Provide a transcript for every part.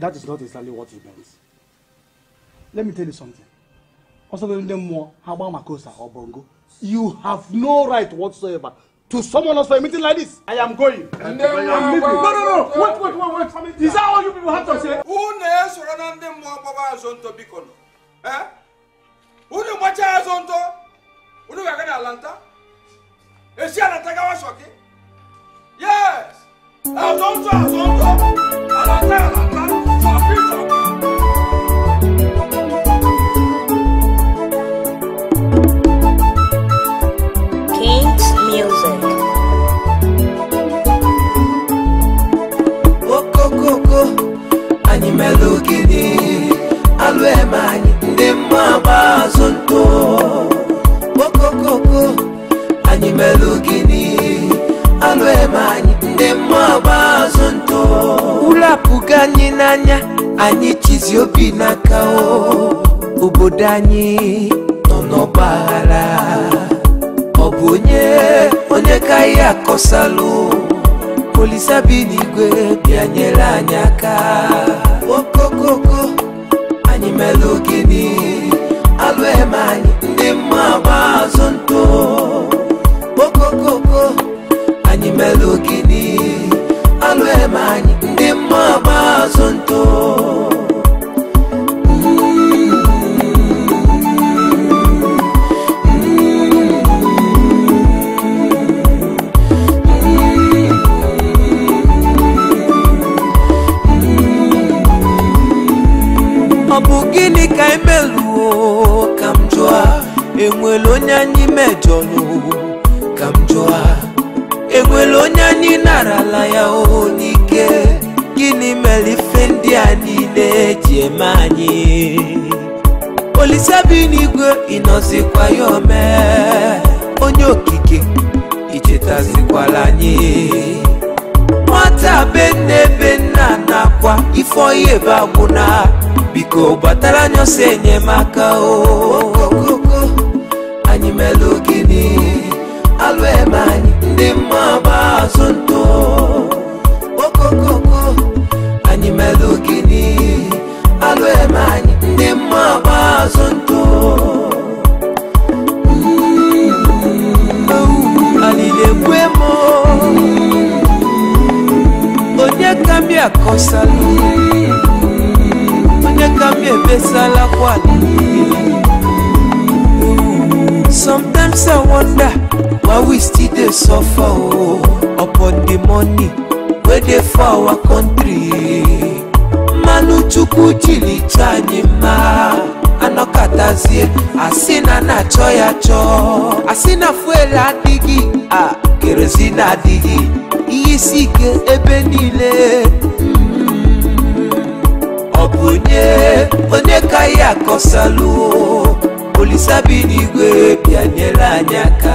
That is not exactly what he meant. Let me tell you something. Also, more Habamakosa or Bongo. You have no right whatsoever to someone else for a meeting like this. I am going. I'm No, no, no. Wait, wait, wait, wait. Is that all you people have to say? Who knows when I'm the more Baba Zonto Bicon? Eh? Who do the Macha Zonto? Who do the Wagan Atlanta? Is she Atlanta Gawashoki? Yes! Azonto, Azonto! Atlanta, Atlanta! olisa bi n'igwe bịa nyere anyị aka okokoko anyị mere ogene alụ eme anyị ndị mma gba azụ ntụ okokoko anyị mere ogene alụ eme enwere onye anyị mejọrọ ka m jụọ enwere onye anyị narala ya oo n'ike gịnị mere ife ndị a niile eji eme anyị olisabi n'igwe ịnọzikwa ya ome onye okike ichetazikwala anyị nwata be nne nna nakwa ifeoyi ebe agwụna biko gbatara anyị enyemaka o anyị melụ alwe alụ ebe anyị ndị dey suffer o oh, upon the money wey dey for our country manuchukwu jilicha anyị mma anọkatazie asị na na-achọ ya chọọ asị na fuel adịghị a kerozin adịghị ihe isi ike ebe niile ọ bụ onye ka ya akọsalụ olisabi bịanyere anyị aka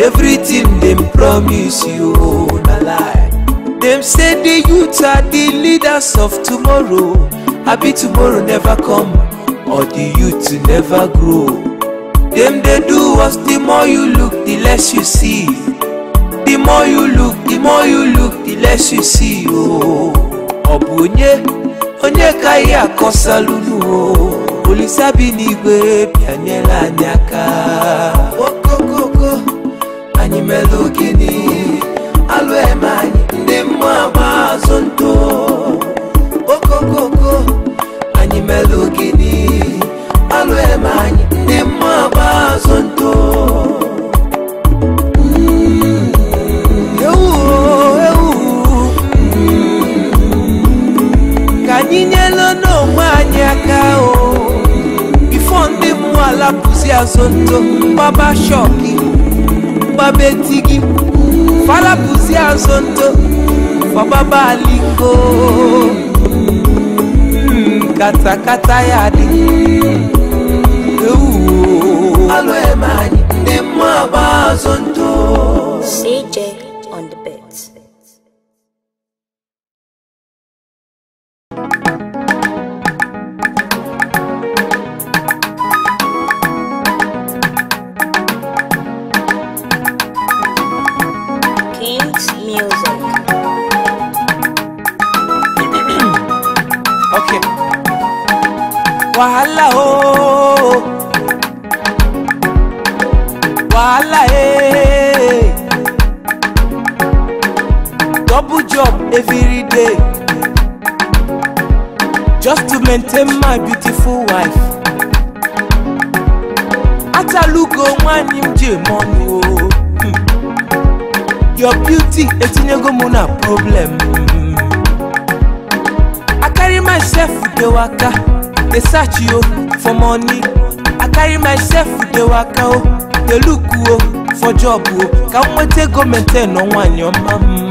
everything dem promise you oh, na lie dem say di youth are di leaders of tomorrow abi tomorrow never come or di youth never grow dem dey do us the more you look the less you see the more you look the more you look the less you see oo oh. ọ onye onye ka anyị akọsalụnu oo oh. olisabi n'igwe bịanyela anyị aka melukini alụemanyị ndị mmụọ agba azụ ntụ okokoko anyị melukini alụemanyị ndị mmụọ agba azụ ntụ ewu ewu mm. ka anyị nyelu n'onwe anyị aka o ifo ndị mmụọ alapụzi azụ ntụ papa betigi falabuzi ya nzoto baba balingo katakata ya di CJ on the bit. day just to maintain my beautiful wife atalugo nwanne m ji mọnụ your beauty etinyego m na problem hmm. I carry myself dey waka dey search oh, for money I carry myself dey waka o oh, look oh, for job o ka m nweta ego maintain nọ nwaanyị ọma hmm.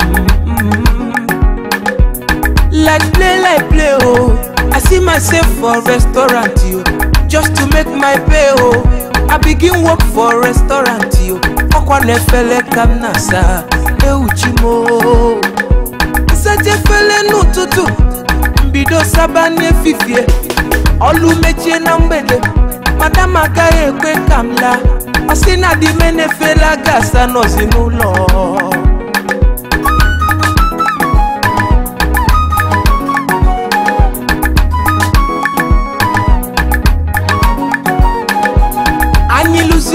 like play like play oh i see myself for restaurant yo just to make my pay oh i begin work for restaurant yo ọkwa e na kam ka m na-asa ewuchi m nsacha mbido saba n'efifie olu mechie na mgbede madam agaghị ekwe kamla m laa na di m n'ụlọ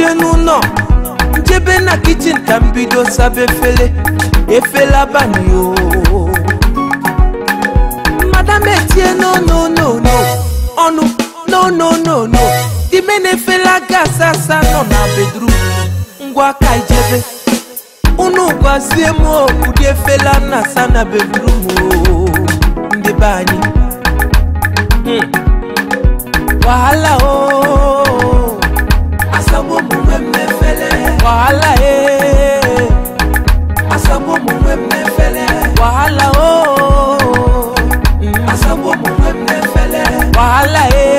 bie n'ụlọ njebe na kichin e e e ka m bido saba efele efele abalị o madam etie no no no no ọnụ no no no no dime na efele aga asa asa nọ na bedrum ngwa aka ijebe unu gwazie m ụdị efele a na-asa na hmm. o ndị anyị wahala o oh. asabomu mẹmẹfẹlẹ. wàhálà ye. asabomu mẹmẹfẹlẹ. wàhálà o. asabomu mẹmẹfẹlẹ. wàhálà ye.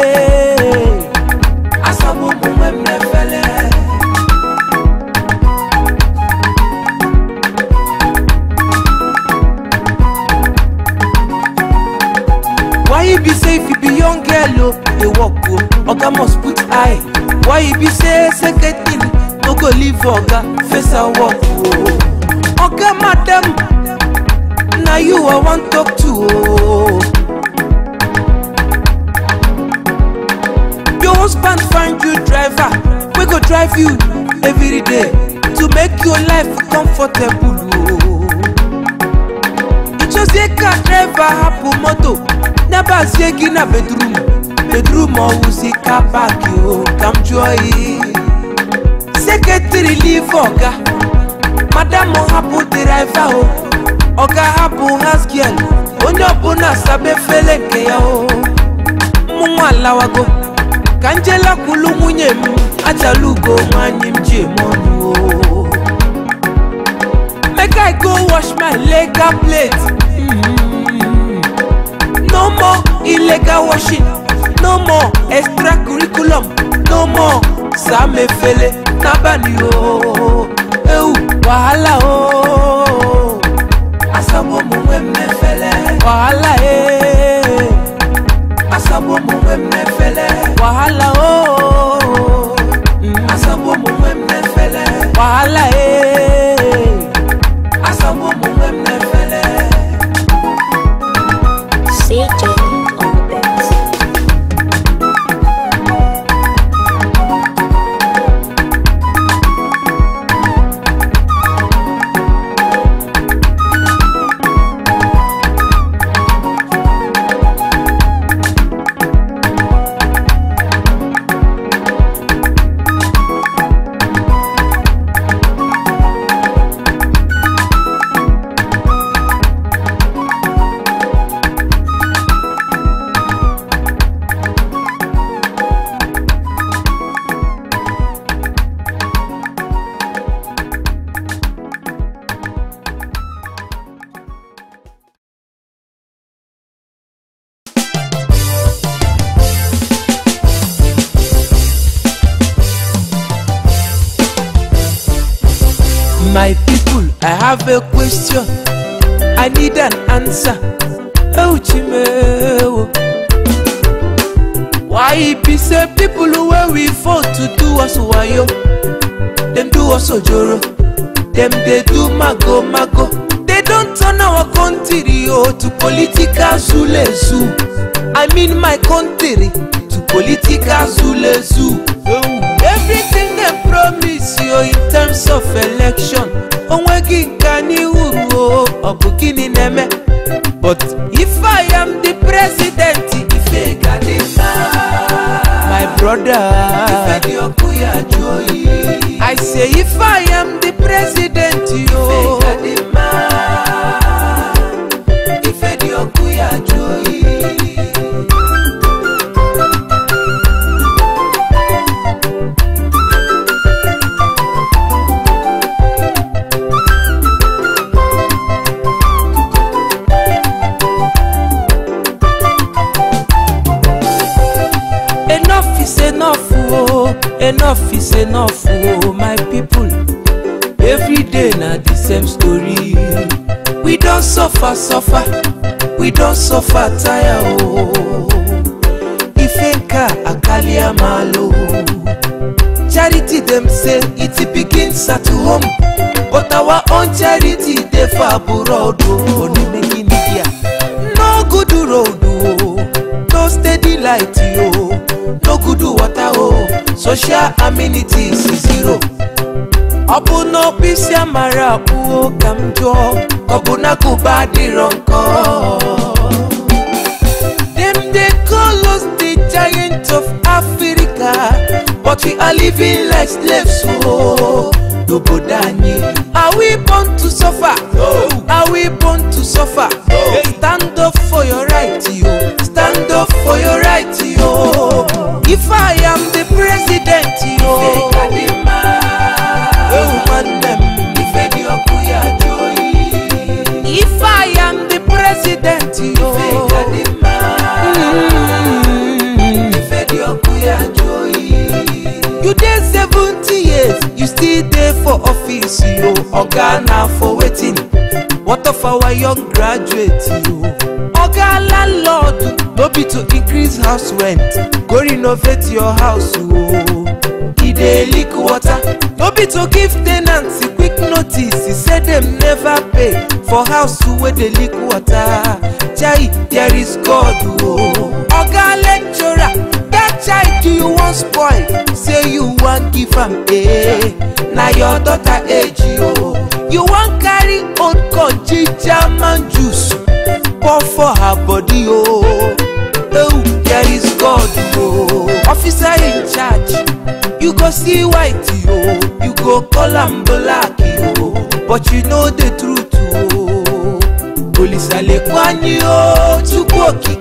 why you be safe if you be young girl o oh. dey work oh, oga must put eye why you be say second thing no go leave oga face her work o oh. oga madam Now you i wan talk to oh. your husband find you driver We go drive you every day to make your life comfortable It o. a car driver hapụ moto in a bedroom. Bedroom wuzika baki o kamjoi Secretary leave oga Madam hapu oh, driver o oh. Oga hapu house girl Onye oh, ọbụla sabe fele nke ya o Mụ nwa alawago Ka njela kwulu nwunye m Ajalugo nwanyị m ji eme ọnụ o Make I go wash my legal plate mm-hmm. No more illegal washing no more extracurriculum no more sàmẹfẹlẹ nábàlì o ewu wahala o. asabo mu wẹ́mẹ́fẹ́lẹ́. wahala ee. asabo mu wẹ́mẹ́fẹ́lẹ́. have a question. I need an answer. Oh, Chimeo. Why it be say people who were we fought to do us why yo? Them do us joro. Them they do mago mago. They don't turn our country oh, to political zule zoo. I mean my country to political zule zoo. Oh everything dem promise you in terms of election onweghị nke anyị uru ọ bụ gịnị na-eme but if i am the president ife ga dị mma my brother ife dị ọkụ ya jụọ oyi i say if i am the president yo. Oh, enough oh my people Every day, na the same story we don suffer suffer we don suffer tire oh akali amalo. Oh. charity dem say it begin start home but our own charity dey for abroad oh onimegi media no good road oh no steady light oh no good water oh social amenities zero ọ bụ n'ọfịsị amara abụọ ka m jụọ ọ bụ n'akụba adịrọ nkọ dem dey call us the giant of africa but we are living like slaves o oh. n'obodo anyị are we born to suffer no. are we born to suffer no. stand up for your right yo stand up for your right. o oga na for wetin what of our young graduate? o oga landlord no be to increase house rent go renovate your house o e dey leak water no be to give ten ants quick notice e say dem never pay for house wey dey leak water chai there is god o oga lecture you wan spoil say you wan give am eh na your daughter age o you wan carry old corn ginger juice pour for her body o oh there is god o officer in charge you go see white o you go call am black o but you know the truth o police alekwanyi o chukwu oke.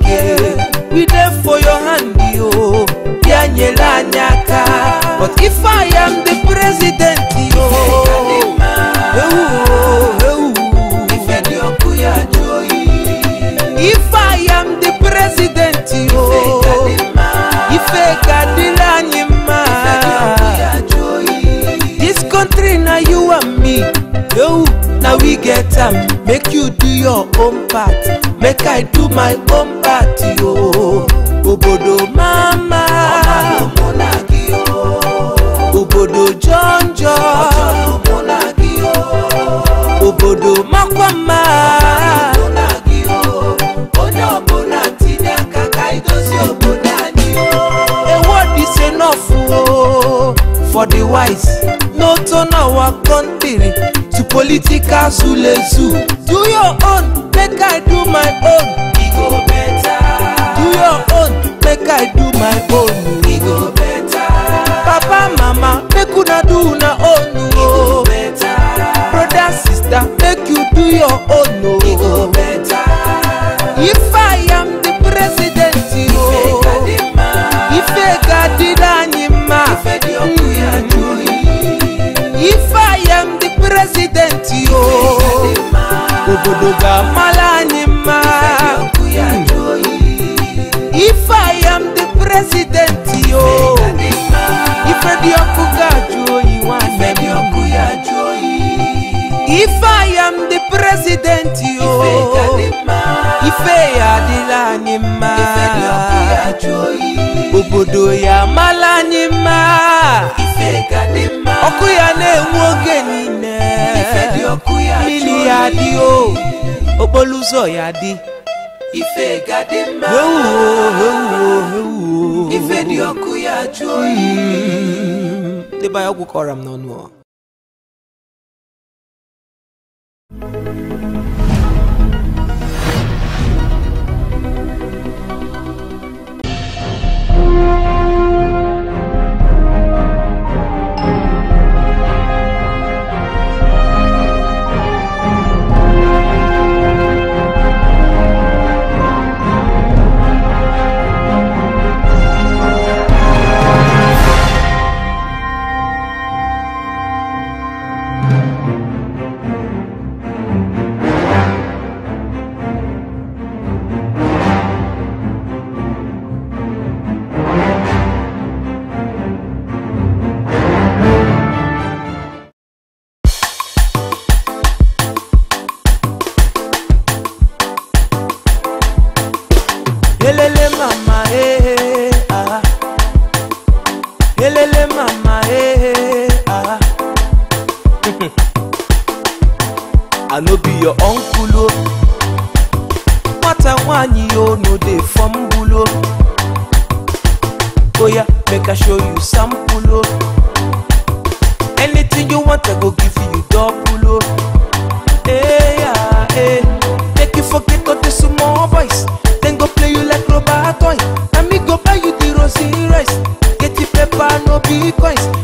my party, o oh. obodo mama obodo jọnjọ obodo makwama a word is enough o oh. for the wise no turn our country to political zulezu do your Odoga Malanima. If I am the president, yo. If I Okuga Joyi If I am the president, yo. Ife Adilanima. Obodo ya Malanima. Ọkụ ya na-enwe oge niile. Miliadi Oboluzọyadé. Ife gade mma. Ewu ewu ewu. Ife dị ọkụ ya jụ oyi. Ndị ọgwụ kọrọ m n'ọnụ. nwanyi yo no dey fumble o oya oh make i show you sample o oh. anything you want i go give you double o oh. eh, yeah hey. Eh. make you forget all the small boys Then go play you like rubber toy And me go buy you the rosy rice get you paper no be coins.